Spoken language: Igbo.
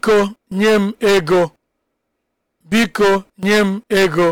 biko nye m ego biko nye m ego